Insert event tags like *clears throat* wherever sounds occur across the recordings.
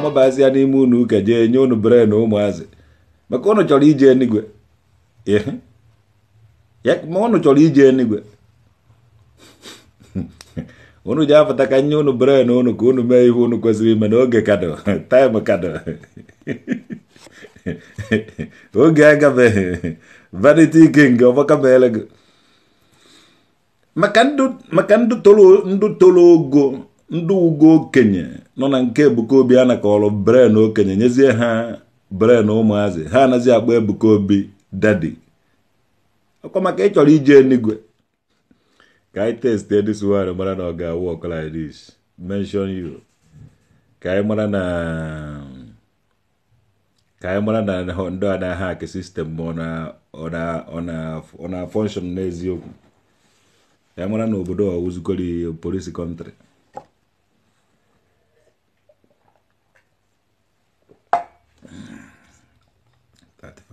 na-amabazi ya n'ime unu ụka jee nye unu bere na ụmụazị maka unu chọrọ ije enigwe ma unu chọrọ ije enigwe *laughs* unu ji apụta ka nye unu bere na unu ka unu mee ihe unu kwesịrị ime n'oge kado *laughs* time kado *laughs* oge agabeghị vanity king ọgbaka meele gị maka ndụ toro ogo ndị ugo okenye nọ na nke Ebuka Obi a nakọrọ bren okenye nyezie ha bren ụmụazị ha anaghịzi agba Ebuka Obi dadi ọkwa maka ịchọrọ ije enigwe ka anyị testee dis wine mara na ọ ga-awụ ọkụ like this mention ka anyị mara na ka anyị mara na ndị a na-aha sistem ma ọ na-afọnshọn n'eziokwu ka anyị mara na obodo ọwụzugoro polisi kọntrị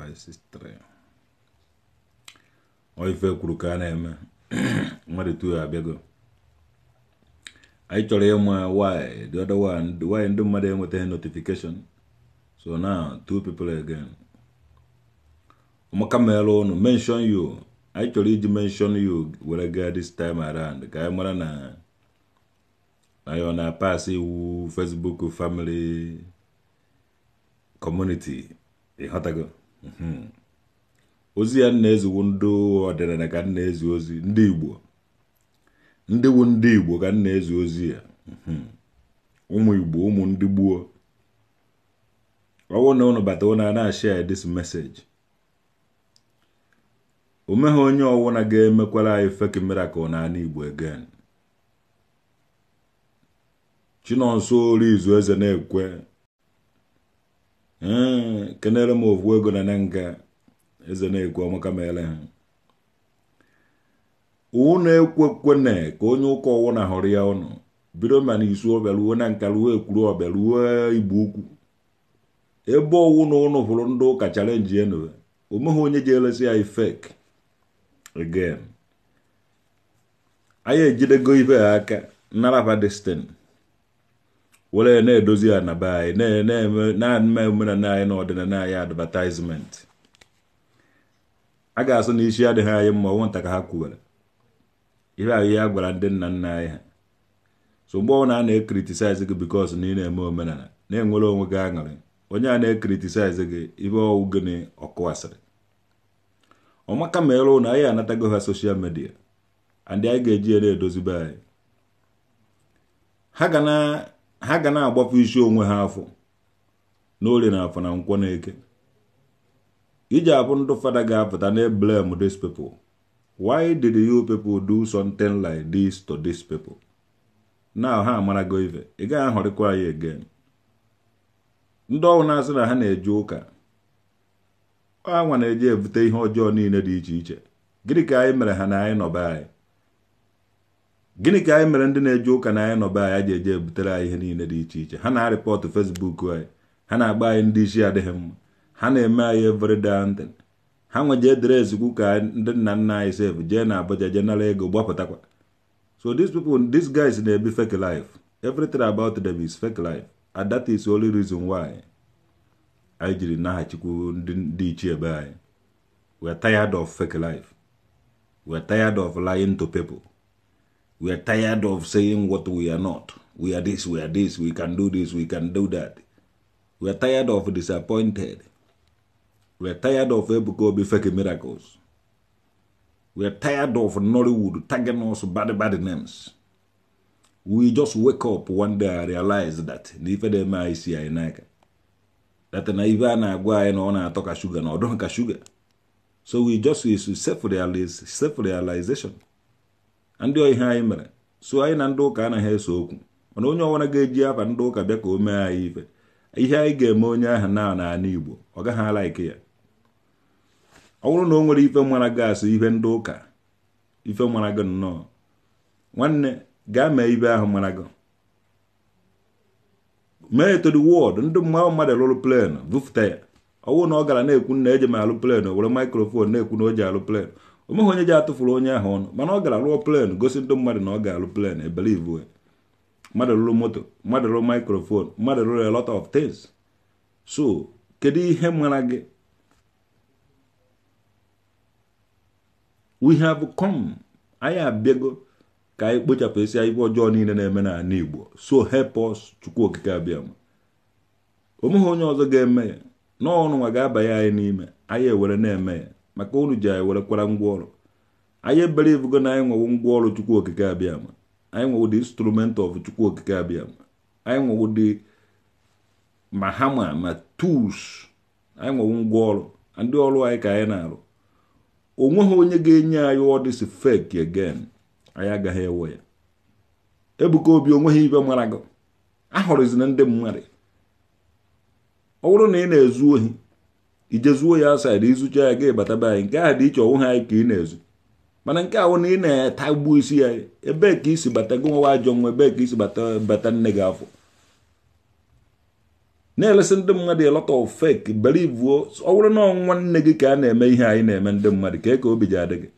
ọ ife kwuru ka a na-eme mmadụ tu abịago anyị chọrọ ịma why ndị mmadụ enwetaghị notification so now two people again maka mere ụnụ mention you anyị chọrọ iji mention you were gaa this time around ka anyị na, na anyị ọ na-apasị iwu Facebook family community ịghọtago e Mhm. ozi ya na-eziwu ndị ọdịnala ka nna ezi ozi ndị igbo ndị wu ndị igbo ka nna ezi ozi ya mhm. ụmụ igbo ụmụ ndị gbuo ọwụ na ụnụ bata ụnụ a na-ashia this message o meghị onye ọwụna ga-emekwara anyị fake miracle n'ala igbo again chinonso ori izu eze na-ekwe ee kenere m ovu ego na ne nga eze na-ekwu ọmaka mere ha uwu na-ekwekwene ka onye ụka ọwụ na hụrụ ya ọnụ bido ma na isu ọbịa na nka ekwuru ọbịa igbo ukwu ebe ọwụ na ụnụ hụrụ ndị ụka chalenji enu omeghị onye ji elesi ya ifek again anyị ejidego ibe ha aka naraba destin were na-edozi ya na be anyị na-eme omenala anyị na ọdịnala anyị advatizment a ga-asụ na isi adịghị anyị mma ọnwụ nta ka ha kwuwere ihe ahụ ihe a gwara ndị nna nna anyị ha so mgbe ọbụla a na-ekritisize gị bikos na ị na-eme omenala na-enwere onwe gị aṅụrị onye a na-ekritisize gị ibe ọwụ gịnị ọkụwasịrị ọmaka ma ịrụ na anyị anatago ha soshal midia and anyị ga-eji ya na-edozibe anyị ha ga na ha ga na agbafu isi onwe ha afọ n'orie na afọ na nkwọ na eke iji abụ ndụ fada ga-apụta na eblem these people why did you people do something like this to these people now ha amarago ife ị gaghị ahọrịkwa anyị again ndị ọhụrụ na-asị na ha na-eje ụka nwa na-eje ebute ihe ọjọọ niile dị iche iche gịnị ka anyị mere ha na anyị nọba anyị gịnị ka anyị mere ndị na-eje ụka na anyị be anyị ji eje butere anyị ihe niile dị iche iche ha na-arịpọtụ fesbuk anyị ha na-agba anyị ndị isi adịghị mma ha na-eme anyị everyday ha nweje edere ezikwu ka ndị nna nna anyị sef jee na Abuja jee nara ego gbapụtakwa so these people these guys na-ebi fake life everything about them is fake life and that is the only reason why anyị jiri naghachikwu ndị ichie ebe anyị we are tired of fake life we are tired of lying to people We are tired of saying what we are not. We are this, we are this, we can do this, we can do that. We are tired of disappointed. We are tired of Ebukobi fake miracles. We are tired of Nollywood tagging us bad, bad names. We just wake up one day and realize that n'ifedema isi anyị n'aka. That naivana ibe a na-agwa anyị na agwa sugar na o sugar. ato ka shuga So we just is self-realization. ndị ihe anyị mere so anyị na ndị ụka anaghị eso okwu mana onye ọbụla ga-eji afa ndị ụka bịa ka o mee anyị ife ihe anyị ga-eme onye ahụ na n'ala Igbo ọ gaghị alaike ya ọ bụrụ na o nwere ife mara gị ife ndị ụka ife mara gị nnọọ nwanne gaa mee ibe ahụ mara gị mee eto wọdụ ndị mmanụ mmadụ lụrụ plenu bufụta ya ọ bụrụ na ọ gara na-ekwu na eji m alụ plen were maikrofon na-ekwu na o ji alụ plen onweghị onye ji atụfuru onye ahụ ọnụ mana ọ gara rụọ plen gosi ndị mmadụ na ọ ga-alụ plen ebelive mmadụ rụrụ moto mmadụ rụrụ mikrofon mmadụ rụrụ a lot of things so kedu ihe mara gị we have come anyị abịago ka anyị kpochapụ esi ife ọjọọ niile na-eme na-ala igbo so help us chukwu okike abịa ma onye ọzọ ga-eme ya n'ọnụnwa ga-abanye anyị n'ime anyị ewere na-eme ya maka unu ji anyị were kwara ngwa ọrụ anyị ebelivugo na anyị nwewo ngwaọrụ chukwu okike abịam anyị nwewo dị instrument of chukwu okike abịam anyị nwewo dị. ma hama ma tools anyị nwewo ngwa ọrụ ndị ọrụ anyị ka anyị na-arụ onweghị onye ga-enye anyị ọdịsi fek again anyị agaghị ewe ya ebuka obi onweghị ibe mara gị ahụrụzina ndị mmadụ ọ bụrụ na ị na-ezu ohi ijezuo ya asaịdị ịzụcha ya ga be anyị nke a dị iche ọnwụ ha anyị ka ị na-ezu mana nke ahụ na ị na-atagbu isi ya ebee ka isi bata gị nwa ajọ nwa ebee ka isi bata bata nne gị afọ na elesị ndị mmadụ elọta lot belivuo fake bụrụ na ọnwa nne gị ka a na-eme ihe anyị na-eme ndị mmadụ ka e ka obi ji adị gị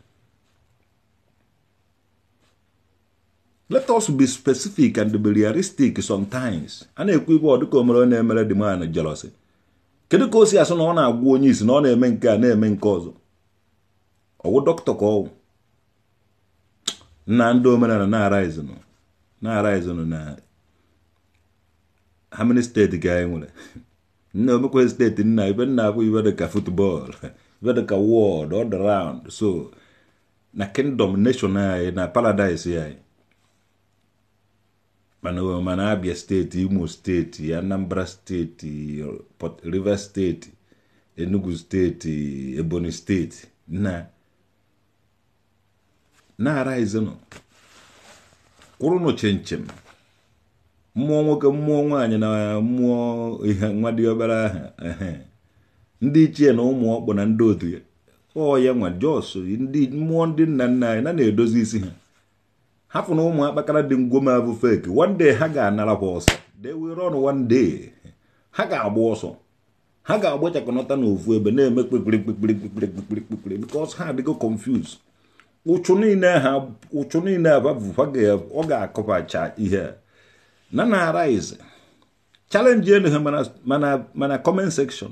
let us be specific and be realistic sometimes a na-ekwu igwe ọ dịka omere na-emere dị man jelosi kedu ka o si asụ na ọ na agwụ onye isi na ọ na-eme nke a na-eme nke ọzọ ọwụ dọkịta ka ọwụ nna ndị omenala na-araizinụ na-araizinụ na ha steeti ka anyị nwere nna omekwe steeti nna ibe nna abụ ibe dịka futbọọlụ ibe dịka wọd all so na kingdom nation anyị na paradise anyị mana abia steeti imo steeti anambra steeti pọt rivers steeti enugu steeti ebonyi steeti na na kwụrụ kwụrụnụ chinchin mmụọ nwoke mmụọ nwaanyị na mmụọ ihe nwa dị obere ndị ichie na ụmụ ọkpụ na ndị otu ya ọ ya nwa jos mmụọ ndị nna nna anyị na na-edozi isi ha hapụ na ụmụ akpakara dị ngwoma abụ fake one day ha ga anara kwa ọsọ they will one day ha ga-agba ọsọ ha ga-agbachakọnata n'ofu ebe na-eme kpekpere kpekpere kpekpere kpekpere kpekpere because ha adịgo confuse ụchụ niile ha ọ ga-akọbacha ihe na na arise challenge enu ha mana comment section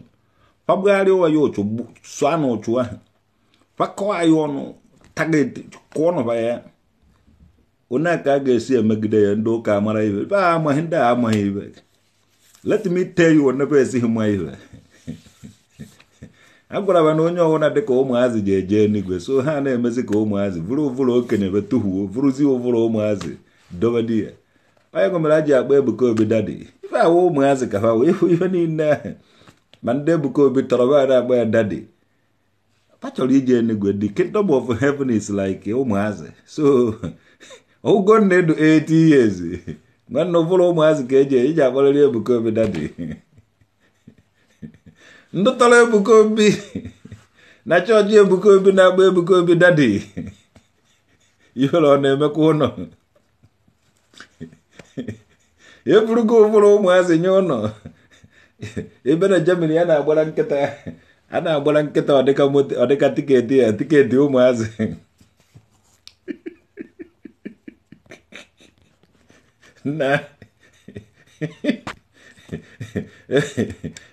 fabugharịa ya ụchụ sụa na ụchụ ahụ fakọọ ya ọnụ target kụọ nụba ya ụna ka a ga-esi emegide ya ndị ụka mara ibe be a amaghị ndị a amaghị ibe let me tell you onebe esighị ma ibe a *laughs* gwara na onye ọbụla dịka ụmụazị ji eje enigwe so ha na-emezi ka ụmụazị vụrụ ụvụrụ okenye be tụhuo vụrụzi ụvụrụ ụmụazị dobedi ya onye gomere a ji akpa Ebuka Obi dadi ife awụ ụmụazị ka ha wee ihe niile ahụ ma ndị Ebuka Obi tọrọ ba na agba ya dadi pa chọrọ ije enigwe the kingdom of heaven is like ụmụazị so *laughs* Ugonna edu 80 years *laughs* nwanne ụbụrụ ụmụazị ka eji iji akpọrịrị Ebuka dadi *laughs* ndụ tọrọ Ebuka *laughs* na chọọchị Ebuka na-agba Ebuka dadi ihere ọ na-emekwa ụlọ eburugo ụbụrụ ụmụazị nye ụnọ. ebe na Germany a na-agbara nkịta a na-agbara nkịta ọdịka tiketi ya tiketi ụmụazị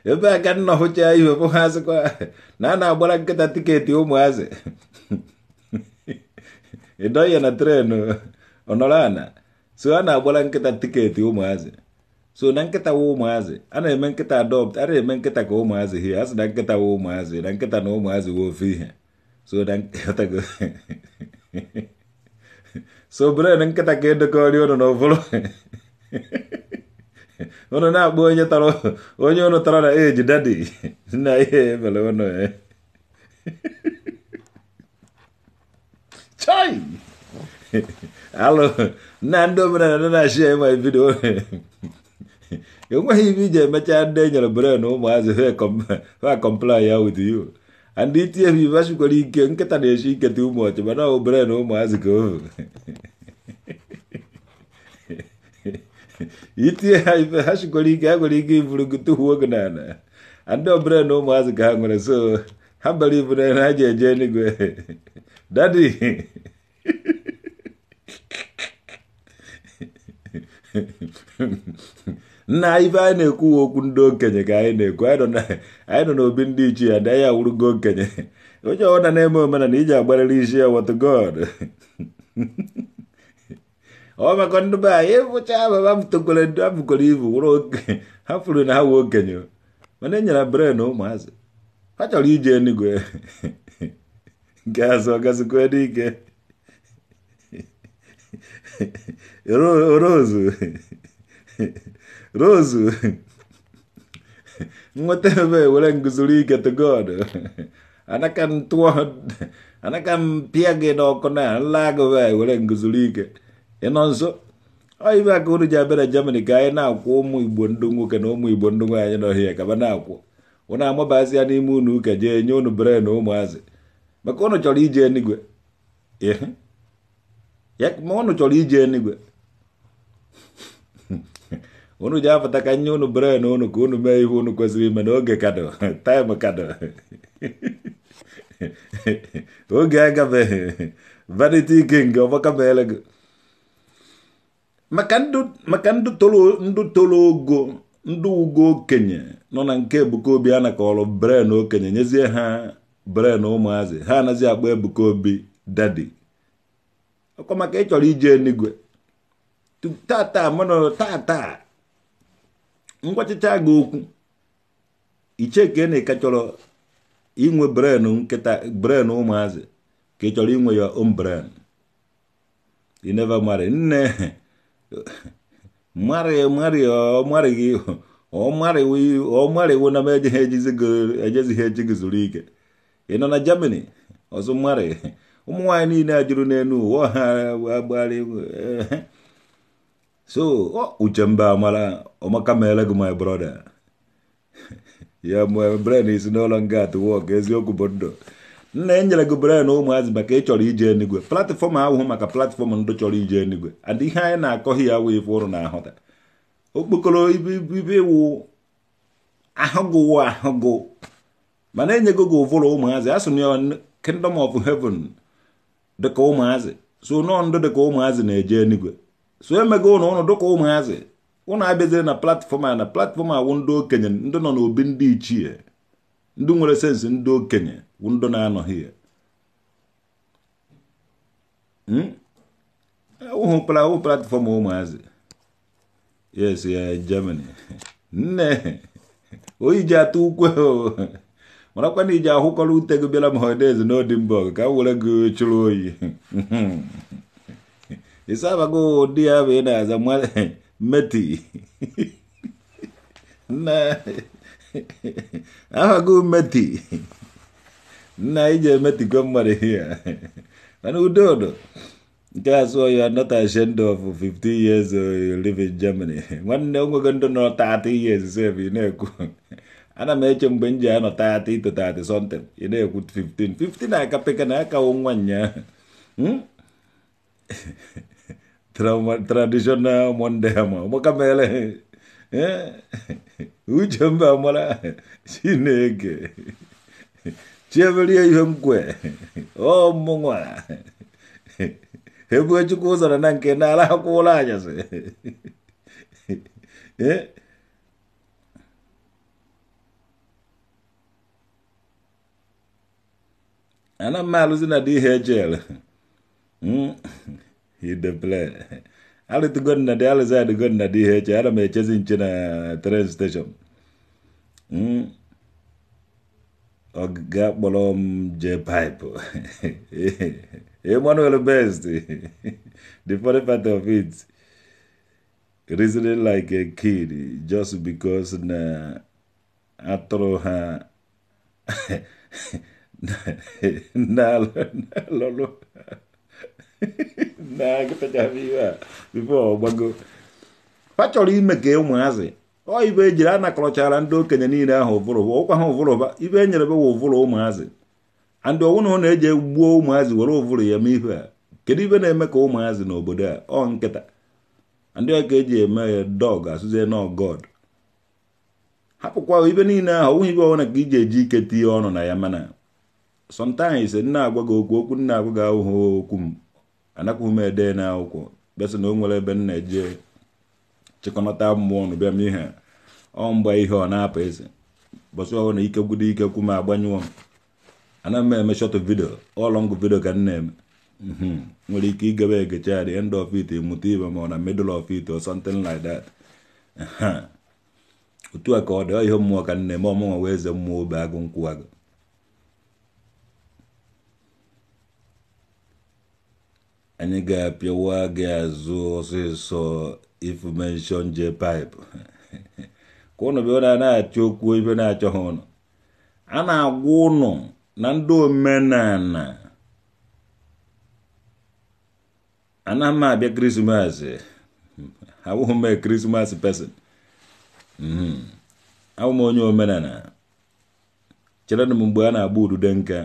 ebe a ka nna hụchaa ihe bụ na a na-agbara nkịta tiketi ụmụazị ịdọghị na tren ọnọrọ ana so a na-agbara nkịta tiketi ụmụazị so na nkịta wa ụmụazị a na-eme nkịta adopt a na-eme nkịta ka ụmụazị hie a na nkịta wa ụmụazị na nkịta na ụmụazị wa ofe ihe so *laughs* so bred nkịta ka edekọrị ụnụ na ụbụrụ ụnụ na-akpọ onye tara onye ụnụ tara na eji dadi na ihe ebele ụnụ chai alụ na ndị omenala na-achị ya ịma vidiyo enweghị ibe iji emecha ndị e nyere bred na ụmụazị ha kọmpla ya with you anditie bi bacukũringio nketania cinketi umwachima no ũmbere no umwazikũu itie hacukũringi hagũringi ibulungutu huognana ande ũmbere no umwazikahang'ore so hambali ibunene hajenjeni gwe dadi na ife anyị na-ekwuwe okwu ndị okenye ka anyị na-ekwu anyị nọ n'obi ndị ichi ya dịanya wurugo okenye onye ọbụla na-eme omenana iji agbarịrị isi ya wọt god ọ maka ndị be anyị ịfụcha ababa tokwere ndị afụkwara ibu wụrụ oke *laughs* ha furu na ha wee okenye mana enyere bre na ụmụazị ha chọrọ iji enugwe *laughs* nke azụ ọgasikwe dị ike *laughs* ro ozu Rozu, ngotebe wala nguzulika to God. Anakan tuwa, anakan piage no kona, lago we wala nguzulika. Enonso, ai ba kuru jabera jamani kaya na ko mu ibondungu kano mu ibondungu anya no hiya kabana ko. Ona mo basi ani munu ka je nyonu bre no mwaze. Makono choli je ni gwe. Yeah. Yak mono choli je ni gwe. unu ji apụta ka nye unu bere na unu ka unu mee ihe unu kwesịrị ime n'oge kado *laughs* taịm kado *laughs* oge agabeghị vanity king nke meele gị maka ndị tolo ogo ndụ ugo okenye nọ na nke Ebuka Obi a nakọrọ bren okenye nyezie ha bren ụmụazị ha anaghị akpọ Ebuka Obi dadi ọkwa maka ịchọrọ ije enigwe tata tata ngwachịcha gị okwu icheke na ka e chọrọ inwe brenu nkịta bren ụmụazị ka ị chọrọ inwe ya om bren ineva mari nne mari mari ọmari gị ọmarịwo na m ejezighị eji gị zuru ike ị nọ na jemani ọzọ mari ụmụ niile ajụrụ n'elu ụwa ha agbalị so uchemba amara ọmaka meere gị my brother *laughs* ya mgbe bren isi n'ụlọ nga at work eziokwu bụ ndụ nna enyere gị bren ụmụazị maka ịchọrọ ije enigwe platfọm ahụhụ maka platfọm ndụ chọrọ ije enigwe and ihe anyị na-akọghị ya wee fụrụ na ahụta okpokoro ibe wụ ahụgụwụ ahụgụ mana enyego gị ụvụrụ ụmụazị asụ na kingdom of heaven dịka ụmụazị so nọọ ndụ dịka ụmụazị na-eje enigwe so emeghị ụnụ ụnụ dịka ụmụazị ụnụ abịazire na platfọm a na platfọm a wụ ndị okenye ndị nọ n'obi ndị ichie ndị nwere sensị ndị okenye wụ ndị na-anọghị ya hmm? ụhụpara e, ụhụ platfọm ụmụazị yes ya Germany *laughs* nne oyi ji atụ ukwe marakwa na iji ahụkọrọ ute gị bịara m hodez ka m were gị chụrụ oyi *laughs* isaba ko dia bena za mwale meti na aba ko meti na ije meti kwa mwale here *laughs* and udodo That's why you are not ashamed of 50 years uh, you live in Germany. Nwanne onwe gị ndụ nọ 30 years say ị na-ekwu. Ana m eche mgbe m ji 30 to 30 something ị na-ekwu 15. 15 aka peka na aka nwa nyaa. Trauma, tradisional mondema gbakamele uche mba mara chineke chiemerie ihe mkwe ọ mmụnwa ebue chukwu ụzọrọ na nke n'ala akwụ ụlọ anyasị ana m alụzi na dị ihe plan, Ali na de ali za tugonna di heche che mechezi na train station. Mm. ga bolom je pipe. *laughs* Emmanuel Best. the funny part of it. Reasoning like a kid just because na atro ha *laughs* na lolo. *laughs* ime ka ụmụazị ọ ibe ejiri a nakọrọchara ndị okenye niile ahụ ụvụrụba ụkwa ha ụvụrụba ibe e nyere bewa ụvụrụ ụmụazị andị ọnwụ na ọ na-eji gbuo ụmụazị were ụvụrụ ya mee ihu a kedu ibe na-eme ka ụmụazị n'obodo a ọ nkịta ndị ọ ka eji eme ya dọg asụzie god hapụkwa ibe niile ahụ ọnwụghị ibe ọbụla ka iji eji ike tinye ọnụ na ya mana sometimes nna agwa gị okwu okwu nna agwa gị ahụhụ okwu m anakwa m ede na akwụkwọ bịasị na o nwere ebe m na-eje chịkọnata mmụọ na bịa m ihe ọ mgba ihe ọ na-apụ eze bọsị ọhụrụ na ike gwudo ike kwu m agbanyụọ m ana m eme shọt vidio ọlọngụ vidio ka m mhm. nwere ike igebe egecha at end of it mụta ibe ma ọ na middle of it or something like that otu a ka ọ dị ihe mmụọ ka m ọ eme ọmụnwa wee eze mmụọ obe agụ nkwụ agụ anyị ga-apịawa gị azụ ọsịsọ ifumeshọn je paịpụ ka ụnụ bịa na achọ okwu ibe na-achọghị ụnụ a na-agwa ụnụ na ndị omenala anaghị m abịa krismas abụghị *laughs* m krismas pesin hmm. abụ m onye omenala chere m mgbe a na-agba ududo nka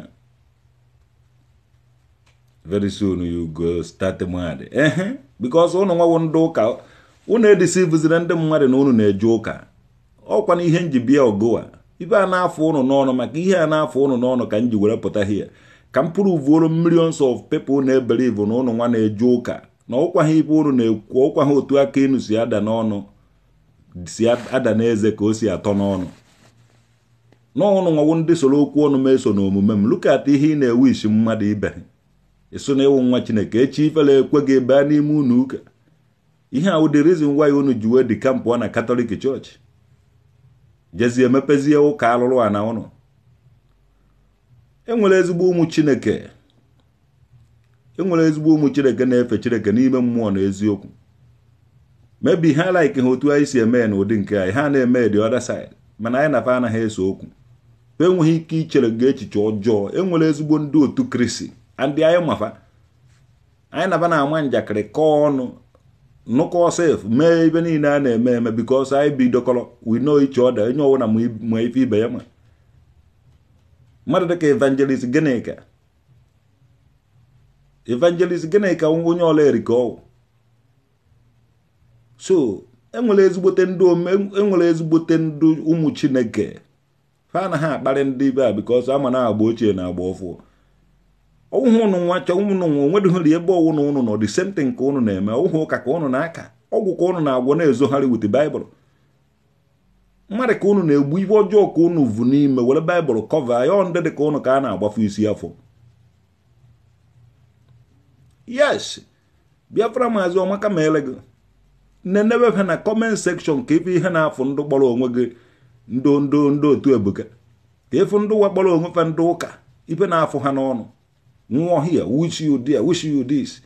very soon you go start mmadụ ehe because ụnụ nwawo ndị ụka ụnụ edisivụzire ndị mmadụ na ụnụ na-eje ụka ọkwa na ihe nji bịa ogoa ibe a na-afụ ụnụ n'ọnụ maka ihe a na-afụ ụnụ n'ọnụ ka m ji were pụta hie ka m pụrụ vuoro millions of people na-ebelivu na ụnụ nwa na-eje ụka na ụkwa ha ibe ụnụ na-ekwu ụkwa ha otu aka inu si ada n'ọnụ si ada n'eze ka o si atọ n'ọnụ n'ọnụ nwawo ndị soro okwu ọnụ meso na omume m look at ihe ị na-ewishi ewu mmadụ ibe ịsụ na ịwụ nwa chineke echi ifele ekwe gị baa n'ime unu ụka ihe a dị rizin waya unu ji wee dị kampụ na katọlik chọọchị jezie emepezie ụka alụrụ a na ụnụ enwere ezigbo ụmụ chineke enwere ezigbo ụmụ chineke na-efe chineke n'ime mmụọ na eziokwu mebi ha laiki ha otu anyị si eme na n'ụdị nke anyị ha na-eme the other mana anyị nafa anaghị eso okwu enweghị ike ichere gị echiche ọjọọ enwere ezigbo ndị otu kristi andị anyị mafa anyị naba na-ama njakịrị kọọ ọnụ nụkọ sef mee ibe niile a na-eme eme bikos anyị bidokọrọ we know each other onye ọwụna ma ife ibe ya ma mmadụ dịka evangelist Ginika evangelist Ginika onye ọla erika ọwụ so enwere ezigbote ndị enwere ezigbote ndụ ụmụ chineke ha na ha akparị ndị ibe a bikos ama na agba ochie na agba ọfụụ ụhụ ụnụ nwa chọọ ụmụnụ nwa onwedoghere ebe ọwụna ụnụ nọ dị same thing ka ụnụ na-eme ụhụ ụka ka ụnụ na-aka ọgwụ ka ụnụ na-agwọ na-ezogharị wit baịbụl mmadụ ka ụnụ na-egbu ibe ọjọọ ka ụnụ vụ n'ime were baịbụl kọva ya ndị dị ka ụnụ ka a na-agbafu isi afọ yes biafra maazị ọmaka ma ele gị nenebe na kọment sekshọn ka ife ihe na-afụ ndụ kpọrọ onwe gị ndo ndo ndo otu ebuka ka ịfụ ndị ụwa kpọrọ onwe ndị ụka ife na-afụ ha n'ọnụ nwa here wish you dia wish you this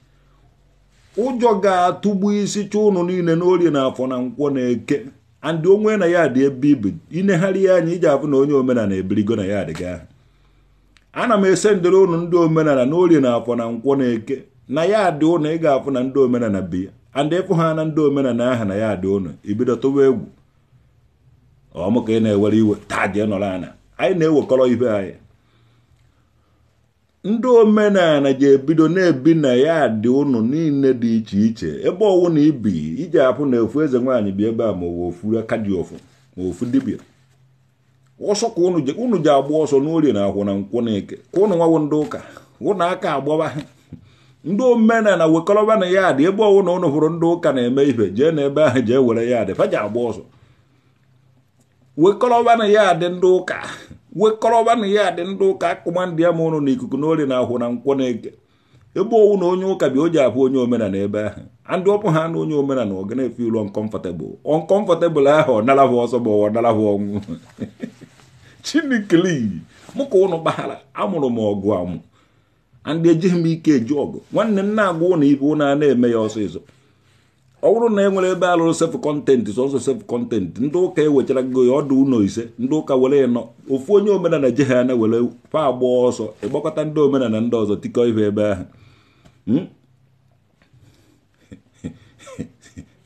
ụjọ ga-atụgbu isi chọ ụnụ niile n'orie na afọ na nkwọ na eke andị onwe na ya dị ebe ibu inegharị ya anya iji afụ na onye omenala ebirigo na ya adịga ana m ese ndere ụnụ ndị omenala n'orie na afọ na nkwọ na eke na ya adị ụnụ ị ga-afụ na ndị omenala bi andị ịfụ ha na ndị omenala aha na ya dị ụnụ ibido tụwa egwu ọmụka ka ị na-ewere iwe taa jee nọrọ anya anyị na-ewekọrọ ibe anyị ndị omenala ga-ebido na-ebi na ya dị ụnụ niile dị iche iche ebe ọwụ na ibi iji apụ na efu eze nwaanyị bi ebe a ma ofu ofuru aka dị ofu ma ofu dibịa ọsọ ka ụnụ ji agba ọsọ n'orie na akwụ na nkwụ na eke ka ụnụ nwawo ndị ụka ụnụ aka agbawa ndị omenala wekọrọba na ya dị ebe ọwụ na ụnụ hụrụ ndị ụka na-eme ife jee na ebe ahụ jee were ya dị fa ji agba ọsọ wekọrọba na ya dị ndị ụka na ya dị ndị ụka akụma ndị ama ụnụ na ikuku na ori na ahụ na nkwọ na eke ebe owu na onye ụka bi o ji abụ onye omenala ebe ahụ andị ọpụ ha na onye omenala ọ ga na-efe ilu ọnkọmfọtebụl ọnkọmfọtebụl ahụ ọ hụ ọsọ bụ ọwa hụ ọnwụ *laughs* chinikili mụ ka ụnụ gbaghara amụrụ m ọgụ amụ andị ejighị m ike eji ọgụ nwanne m na-agwa ụnụ ibe ụnụ a na-eme ya ọsọ ịzọ ọ bụrụ na e nwere ebe alụrụ sef kọntentị sọsọ sef kọntentị ndị ụka ewechara gị ọdụ ụlọ ise ndị ụka were ya nọ ofu onye omenala ji ha were fa agba ọsọ ịgbakọta ndị omenala ndị ọzọ tikọ ihe ebe ahụ hmm?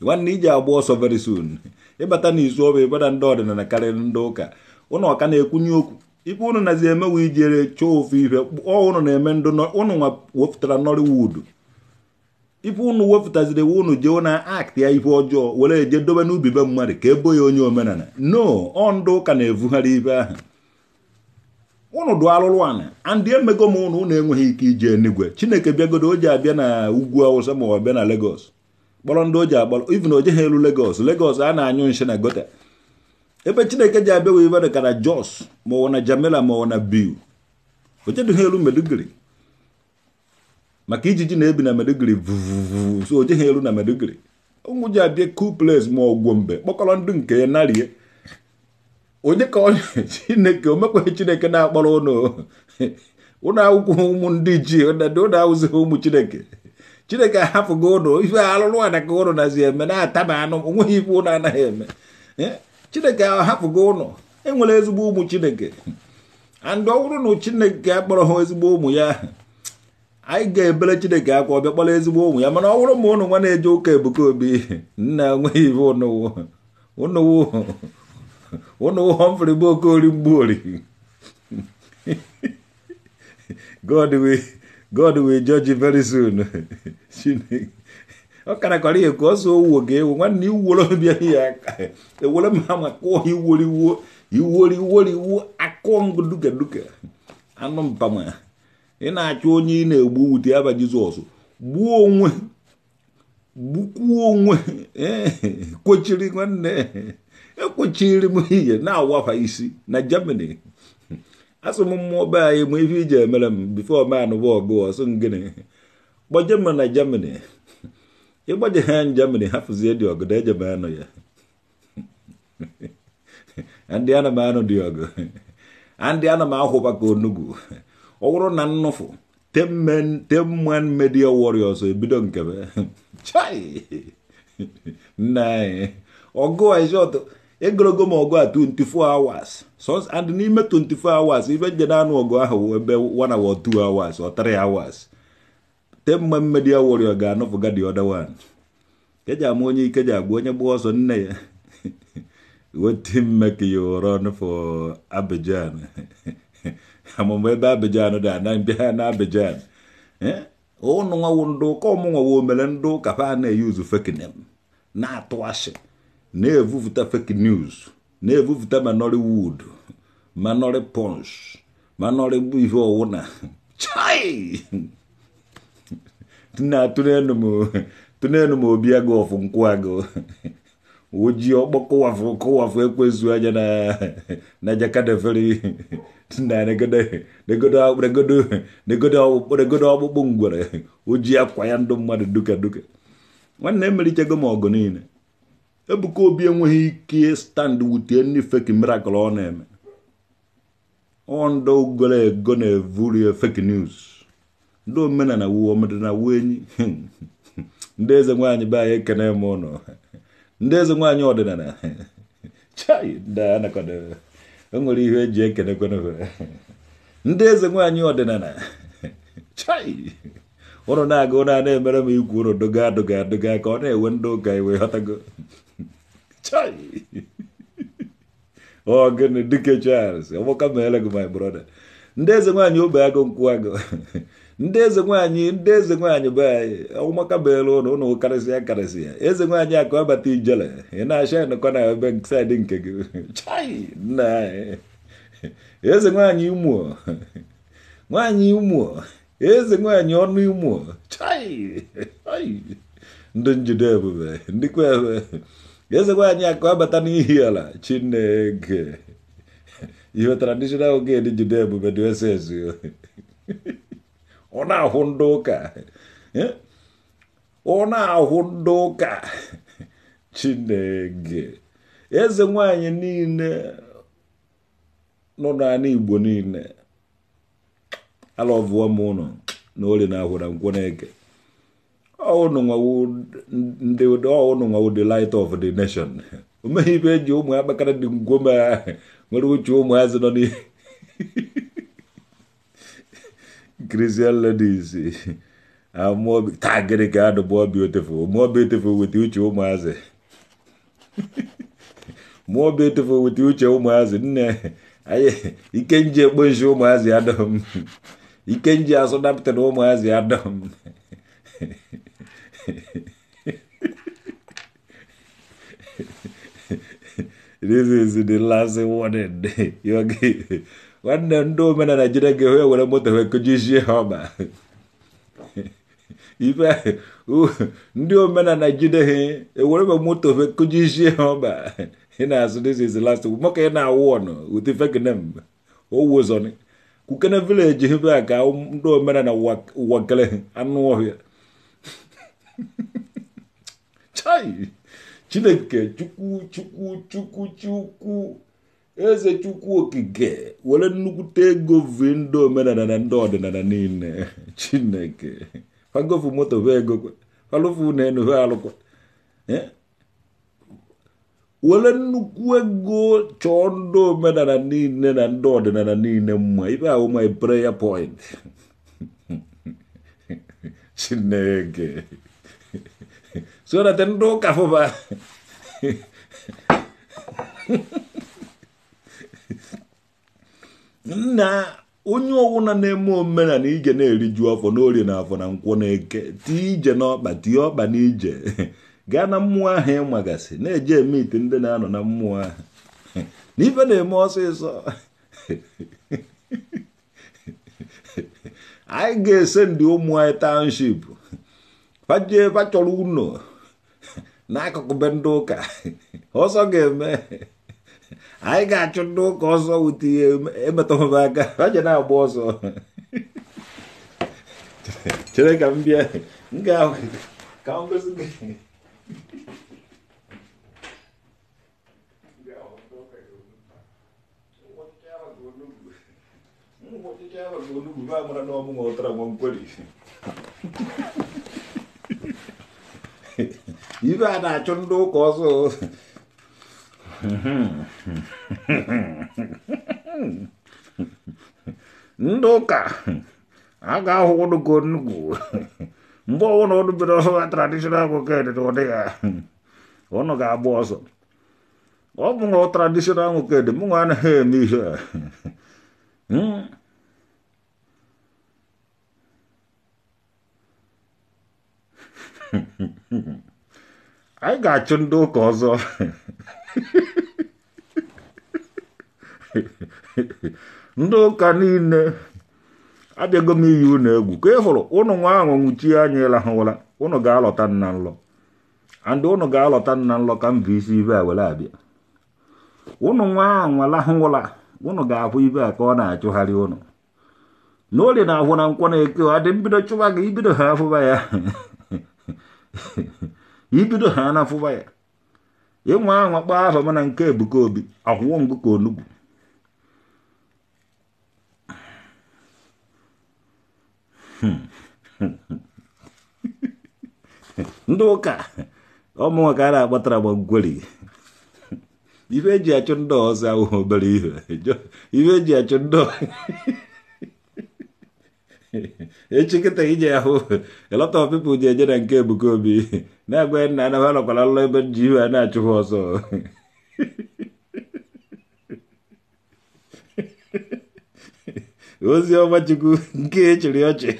*laughs* nwanne iji agba ọsọ veri soon ịbata na izu ọba ịbada ndị ọdịnala karịrị ndị ụka ụnụ ọka na-ekwunye okwu ife ụnụ nazi emewe ijere chọọ ofe ife ọ ụnụ na-eme ndụ ụnụ nwa wepụtara nọliwudu ife unu wepụtaziri iwu unu jee ụna aktị ya ife ọjọọ were eje dobe n'ubi be mmadụ ka ebo ya onye omenala no ọ ụka na-evugharị ibe ahụ ụnụ dụ alụrụ ana andị emego m ụnụ ụnụ enweghị ike ije enigwe chineke bịagodo o ji abịa na ugwu awụsa ma ọ na legos kpọrọ ndị o ji akpọrọ ivin o elu legos legos a na-anyụ nshi na gota ebe chineke ji abịa wee ibe jos ma ọ na jamela ma ọ na biu o jedughị elu meduguri maka ijiji na-ebi na Maiduguri vuvuvu so o jeghị elu na Maiduguri ụmụ ji abịa kuples ma ọgwụ mgbe kpọkọrọ ndụ nke ya narie onye ka onye *laughs* chineke omekwa chineke na-akpọrọ ụlọ *laughs* ụlọ akwụkwọ ụmụ ndị ji ụlọ awụzighị ụmụ chineke chineke ahapụgo ụlọ ife alụrụ ada ka ụlọ nazi eme na-ata ma anụ onweghị ife ụlọ anaghị eme chineke ahapụgo ụlọ enwere ezigbo ụmụ chineke andị ọ bụrụ na chineke akpọrọ ha ezigbo ụmụ ya anyị ga ebele chineke akwa ọbịa kpọrọ ezigbo ụmụ ya mana ọ bụrụ ma ụnụ nwa na-eje ụka ebuka obi nna enweghị ibe ụnụwụ Humphrey bụ okori mgbuori God will God will judge you very soon ọ karakọrọ ihe ka ọ so owuwo ga ewu nwanne iwuoro bịa ya ewere e ma ma kụọ iwori iwori iwori iwori akụọ ngudugaduga anụ mpama ị na-achọ onye ị na-egbu wute ya bụ jizọs gbuo onwe gbukwuo onwe kwechiri nwanne ekwechiri m ihe na-awafa isi na germany asị m mmụọ be anyị ma ife iji emere m bifo man wọgụ ọsọ ngịnị gbaje m na germany ịgbaje ha germany hapụzie dị ọgụ eje m anụ ya ndị ana m anụ dị ọgụ ndị ana m ahụba ka onugbu ọ bụrụ na nnụfụ teman media warriors ebido nkebe nna anyị ọgụ ọgụ egologo m ọgụ a 24 hours and n'ime 24 hours ife na anụ ọgụ ahụ ebe 1 hour 2 hours or 3 hours teman media warrior ga-anụfụga the other one ama onye ike ji onye gba ọsọ nne ya *laughs* wetin make you run for Abidjan *laughs* amụma ebe abejan dị anambịa na abejan ụnụ nwawo ndị ụka ọmụnwa wo mere ndị ụka ha na-eyuzu fake name na-atụ ashị na-evupụta fake news na-evupụta manori wood manọrị punch manọrị ihe ọwụna *laughs* chai na-atụnelu m obi agụ ọfụ nkwụ agụ ojii ọkpọkọ wafu kọwafu ekwezu anya na na jakadeveri na negodo ọkpụkpụ ngwere ojii akwa ya ndụ mmadụ duka duka nwanne emerichego m ọgụ niile ebuka obi enweghị ike stand wutie ndị feki mirakụl ọ na-eme ọndụ goro ego na-evuri feki news ndị omenala wuo ọmdịna wuo enyi *laughs* ndị eze nwaanyị be anyị ekene m ụnụ ndị eze nwaanyị ọdịnala chai enwere ihe eji ekene ndị eze nwaanyị ọdịnala chai ụnụ na-aga ụnụ a na-emere m ikwu ụnụ dụga adoga adoga ka ọ na-ewe ndị ụka iwe ghọtago chai ọ gịnị dike Charles ọgbọka meere gị my brother ndị eze nwaanyị ogbe agụ nkwụ agụ ndị eze nwaanyị ndị eze nwaanyị be anyị ọmụmaka beelu ụlọ ụlọ karịsịa karịsịa eze nwaanyị akụ abata ijele ị na-acha nọkọ na ebe saịdị nke gị *laughs* chai nna anyị eze nwaanyị imuo *laughs* nwaanyị imuo eze nwaanyị ọnụ imuo chai ndị njide ebube ndịkwa ebe eze nwaanyị akụ abata n'ihi ala chineke *laughs* ihe tradishonal ged njide ebube dị ese ezu ọ na-ahụ ndị ụka ọ na-ahụ ndị ụka chineke eze nwanyị niile nọ n'ala igbo niile alọvụọ m ụnụ na ori na ahụ na nkwụ na-eke ọnụ nwawu the light of the nation o ibe eji ụmụ akpakara dị ngwoma nwere uche ụmụazị nọ n'ihe Christian ladies amaobi taa gịnị ka adụ bụ obi otefo maobi otefo weta uche ụmụazị maobi otefo weta uche ụmụazị nne ikenji ekponshi ụmụazị adọm ikenji asọdapụtara ụmụazị adọm this is the last *laughs* warning you okay nwanne ndị omenala jide moto ha ife ndị omenala jide ha ewere be moto wee kụjijie ha ọba ị na-asụ this is the last maka ị na-awụ ụdị fekinem owozọni kukene vileji hebe a ka ndị omenala wakele anụ ọhịa chai chineke chukwu chukwu chukwu chukwu eze chukwu okike were nnukwute *laughs* eh? ego vi ndị omenala na ndị ọdịnala niile chineke fagofu moto ve ego falụfu na enwe ve alụkwa were nnukwu ego chọọ ndị omenala niile na ndị ọdịnala niile mma ibe ahụ my e prayer point *laughs* chineke Jonathan do kafo ba na onye ọwụna na-eme omenala ije na-eriju afọ n'orie na afọ na nkwụ na-eke tie ije n'ọkpa tie ọkpa n'ije gaa na mmụọ ahụ ịmagasị na-eje eme ite ndị na-anọ na mmụọ ahụ na na-eme ọsịsọ anyị ga-ese ndị ụmụ anyị township fajie fachọrọ ụlọ nako kubenduka hoso geme ai gacho nduka hoso uti emetomabaga vaja nayo boso chireka mbia ngawe kaongosinge Vamos lá, não vamos outra, vamos por isso. ibe a na-achụ ndị ụka ọsọ ndị ụka a ga-ahụ ụdụgo nnukwu mgbe ọbụla ụdụ bere ọsọ ha tradishonal akụkọ edede ọ dịghị ọnụ ga-agba ọsọ ọ bụ na tradishonal nwoke ede mụ nwa anaghị eme ihe a Mm-hmm. anyị ga-achụ ndị ụka ọzọ ndị ụka niile abịago m iyi unu egwu ka ị hụrụ ụnụ nwa ahụ nwuchie anya ịlahụwala ụnụ ga-alọta nna nlọ andị ụnụ ga-alọta nna nlọ ka mbụ isi ibe a were abịa ụnụ nwa ahụ nwalahụwụla ụnụ ga-ahụ ibe a ka ọ na-achụgharị ụnụ na na ahụ na nkwọ na-eke ọ dị mbido chụwa gị ibido ha afụba ya *laughs* ibido ha na afụba ya ịnwa anwa kpaa afa mana nke ebuka obi akwụwọ ngụ ka onugbu ndị ụka ọmụnwa ka a na-akpatara gbagweri ife eji achụ ndị ọzọ ahụhụ obere ihe ife eji achụ ndị *laughs* echi kịta ije ahụ a lot of people ji eje na nke ebuka obi na-agwa nna ya na ha nọkwara lụlọ ebe ji iwe a na-achụ ha ọsọ *laughs* ozi ọma chukwu nke echiri ọchị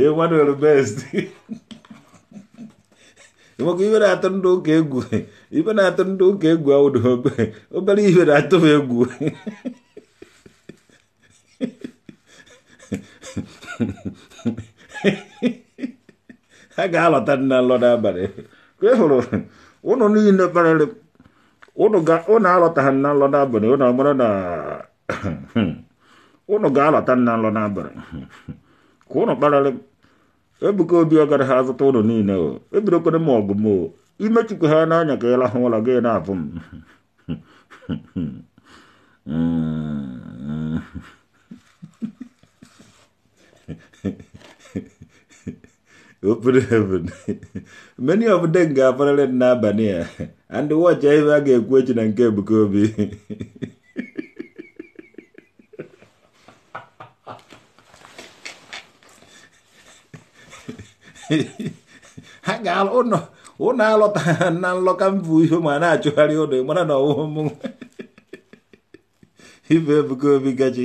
*laughs* Emmanuel best maka *laughs* iwe na-atụ ndụ ụka egwu ibe na-atụ ndị ụka egwu awụdobe obere ihe na-atụ m egwu ha ga-alọta dị na nlọda abalị ka hụrụ ụnụ niile kparịrị ụnụ alọtaghị na nlọda ụnụ na ụnụ ga-alọta na nlọda n'abalị ka ụnụ kparịrị ebuka obi ọgara ha azụta ụnụ niile o ebidokwere m ọgụ m o imechikwa ha n'anya ka ịla hụ ụlọ gị na-abụ m open heaven many of them ga-aparịrị n'abalị a and watch ihe a ga-ekwu echi na nke Ebuka Obi ha ga ụlọ ụlọ alọta ha na nlọka mbụ ihe ma na-achụgharị ụlọ mara na ọwụmụ ife Ebuka Obi gachi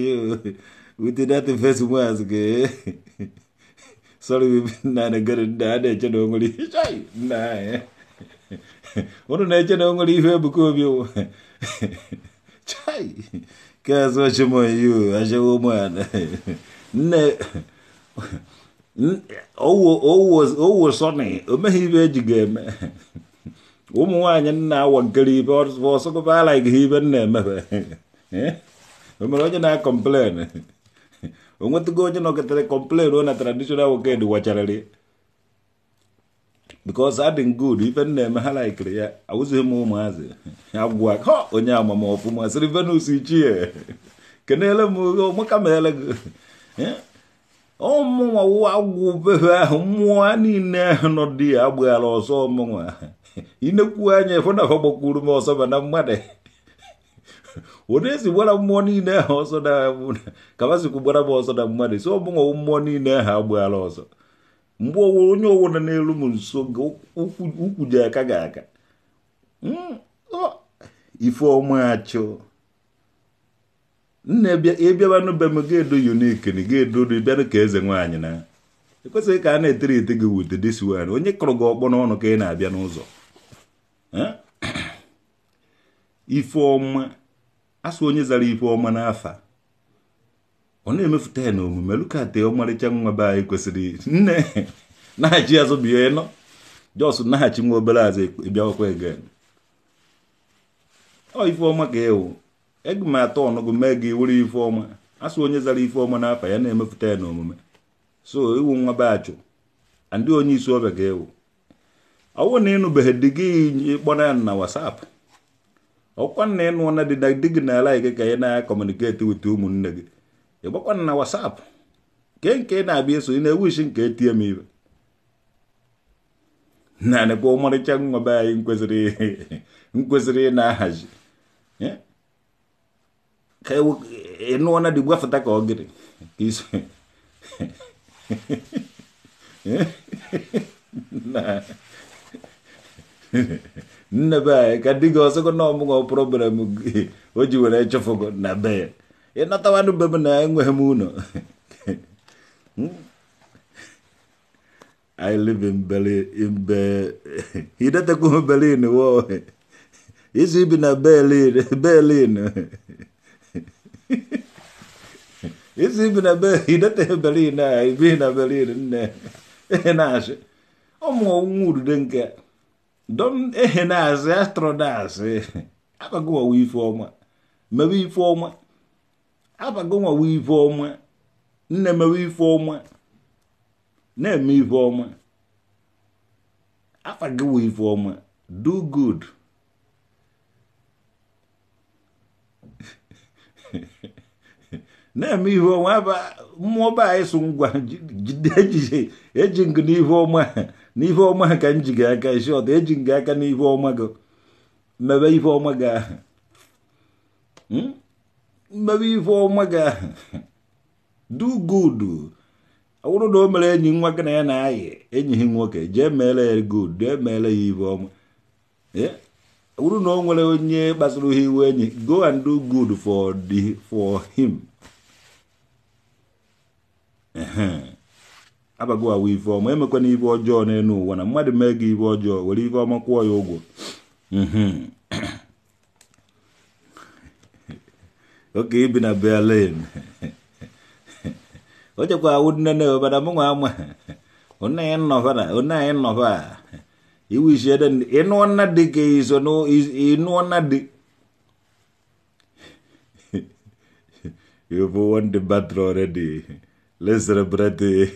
within that first words na soli nane gari nane chano ngoli shai nae ono ne chano ngoli hwe buko bio chai kaso chimo yu ashe wo mwana ne owo owo owo sone omehibe jigeme ụmụ nwaanyị nna awankiri ibe ọsọkọba alaghị ibe nna emebe o mere onye na-akọmplen ong'wetgo onye nokethre complain on traditional wokendi wacharari because adding good even neme laikiri *laughs* ya awụzighị m ụmụazị ya gwa ha onye amama ọfụma sịrị *laughs* kenele m ụmụka meele gị ọmụnwa *laughs* eh? agwụbeghị ahụ mmụọ niile ahụ nọ di ya agbaghara ọsọ ọmụnwa inekwu anya ịfụnafọ gbakwuru m ọsọ ba na mmadụ onezigwara mmụọ niile ha ọsọ ka mazikwu gbara m ọsọ na mmadụ si ọbụnwa mmụọ niile ha agbaghara ọsọ mgbe onye owo nọ n'elu m nso ukwu ji aka ga aka ife ọma achụ nna ịbịabanụ be m ga-edo yunikiri ga-edori bịanụ ka eze nwaanyị na ekwesịghị ka a na-etere ete gị wute disiwan onye kụrụ gị ọkpọ n'ọnụ ka ị na-abịa n'ụzọ ife ọma asụ onye zara ife ọma n'afa ọ na-emefụta ya na omume lukate ọmarịcha nwa be anyị kwesịrị nne naghachi azụ bie nọ jos naghachi nwa obere azụ bịawakwa egen ọ ife ọma ka ewu ege m atọ ọnụgụ mee gị were ife ọma asụ onye zara ife ọma n'afa ya na-emefụta ya na omume so iwu nwa be achụ ndị onye isi ọbịa ga-ewu ọ bụrụ na ịnụbeghị di gị ịkpọrọ ya na wasapụ kwan na ịnụ na dị di gị na ala gị ka ị na-akọmuniketi wit ụmụnne gị kwan na WhatsApp ke nke na-abịa eso ị na-ewishi nke etie m ibe naanịkwa ọmarịcha be anyị nkwesịrị *laughs* ị na-ahazi ka ịnụọ na dị gwafụta ka ọgịrị ka iso *laughs* *laughs* na nne be kadiga osoko no mungo problem ojiwere chofogo na be inata wandu be na engwe muno hmm? I live in Berlin in Berlin be hidata *laughs* ku Berlin wo isi bina Berlin Berlin *laughs* isi bina be hidata Berlin na ibina Berlin ne *laughs* na ashe omo nguru denke dɔm ehe na-azị astrodas abagonwa ife ọma mewe ife ọma abagonwa ife ọma nne mewe ife ọma na-eme ife ọma afagowa ife ọma do good *laughs* na-eme ihe ọma mmụọ anyị so ngwa jide ejije ọma n'ife ọma ka m ji gị aka isi ọta eji m gị aka n'ife ọma gị mebe ife ọma gị ahụ hmm? mebe ife ọma gị ahụ do good ọ bụrụ na o mere enyi nwa gị na ya na-ayị enyi nwoke jee meere ya good jee meere ya ife ọma ọ bụrụ na o nwere onye kpasuru ha iwe enyi go and do good for the for him. abago awa ife ọma emekwana ife ọjọọ n'elu ụwa na mmadụ mee gị ife ọjọọ were ife ọma kwụọ ya ụgwọ *clears throat* oke ibi na berlin *laughs* o chekwa awụ nnene obada mụnwa ama *laughs* onne ya nnọfa na onne anyị nnọfa *laughs* iwishie den ịnụọ nna dị ka iso ịnụọ nna dị you've won the battle already Lezere bredy.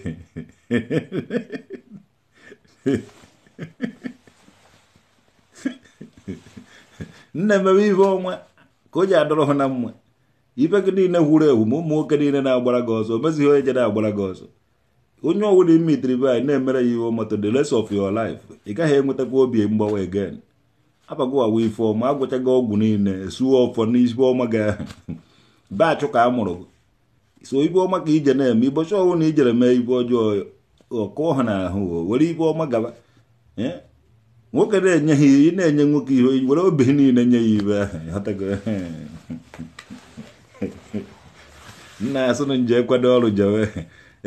nna emebe ibe ọnwa ka o ji adọrọ hụ na mma ibe gị niile wuru ewu ma ụmụ nwoke niile na-agbara gị ọzọ omezighị onye je na-agbara gị ọzọ onye ọwụla ime itiri be anyị na-emere ya ihe ọmatọ the rest of your life ị gaghị enwetakwa obi mgbawa again abagowawa ife ọma agwụchago ọgwụ niile esuo ọfọ n'isi ọma gị ahụ baachụ ka a mụrụ so ibe ọma ka ije na-eme ịbọchị ọnwụ na ijere mee ibu ọjọọ ọkụọ ha n'ahụ were ibe ọma gaba nwoke na-enye ha ị na-enye nwoke ihe were obi niile nye ya ibe ahụ *laughs* nna asụ nje kwado ọrụ jewe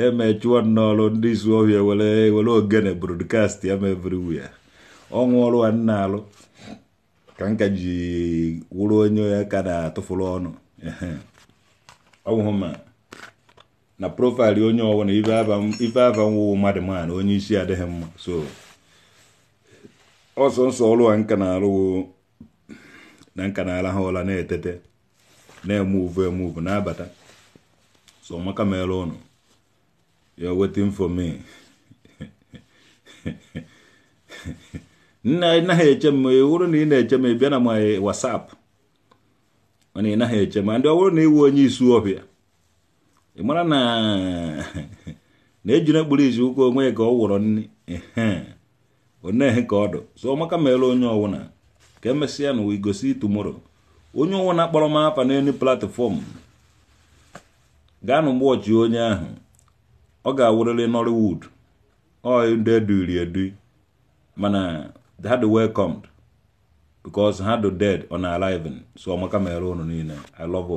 eme chụọ n'ọrụ ndị isu ọhịa e were e were ogene brodkast ya mebiriwu ya ọnwụ ọrụ a nna alụ ka nka ji wụrụ onye ya ka na-atụfụrụ ọnụ ọnwụhụ ma na profaịlụ onye ọbụla ife aba nwụwụ mmadụ maana na onye isi adịghị mma so ọsọ nsọ ọrụ a nka na-alụwo na nka na-ala ha ụla na-etete na-emuvu emuvu na-abata so maka mere ụnụ you're wetin for me naghị eche m wụrụ na ị na-eche m bịa na m wasapụ mana ị naghị eche ma ndị ọ bụrụ na ịwụ onye isu ọbịa ị mara na *laughs* na ejina kpụrụ izu ụka onwe ka ọ wụrọ nri onehe ka ọ dụ so ọmaka mere onye ọwụna ka emesịa na wigosi tumoro onye ọwụna kpọrọ m afa n'elu platfọm gaa na ọchị onye ahụ ọ ga-awụrịrị nollywood ọ ndị eduri edu mana ha dị welcomed because ha dị dead on arriving so ọmaka mere unu niile i love